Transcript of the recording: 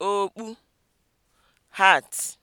okpu hat